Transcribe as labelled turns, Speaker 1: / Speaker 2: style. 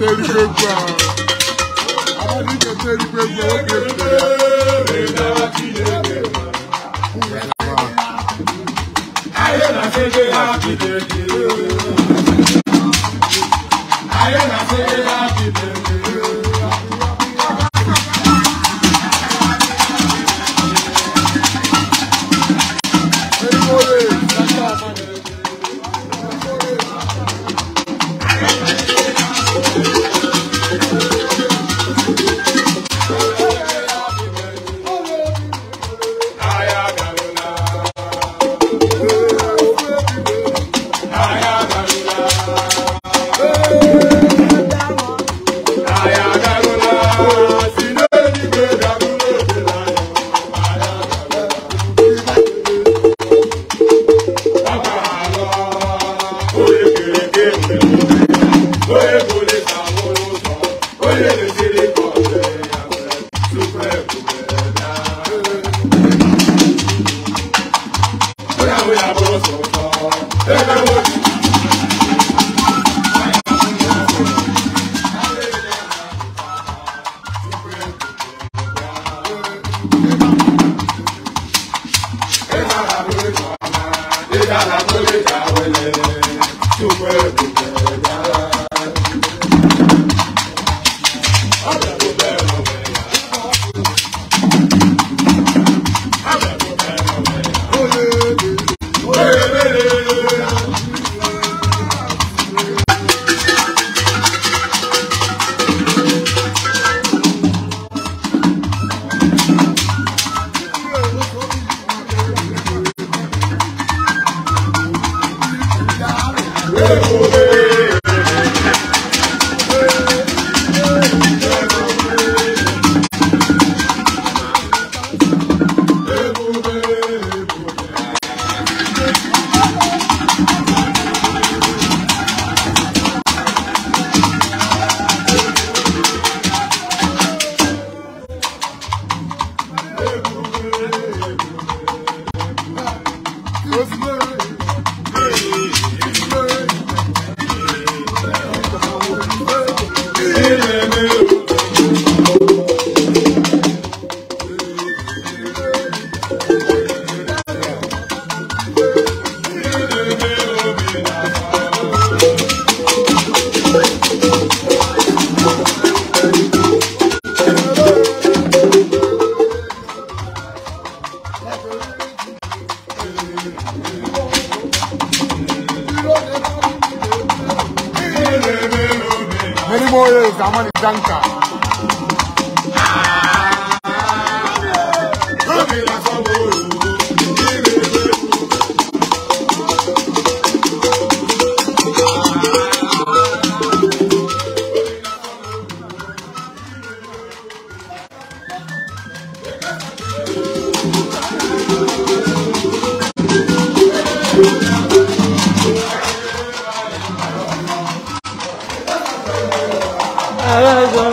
Speaker 1: teri gbogbo a àwọn oníke teri gbogbo ó gbé gbé. ayé na ṣe gbé ha kìdèkì. thank you Many more years, I'm on the tanker. Nazım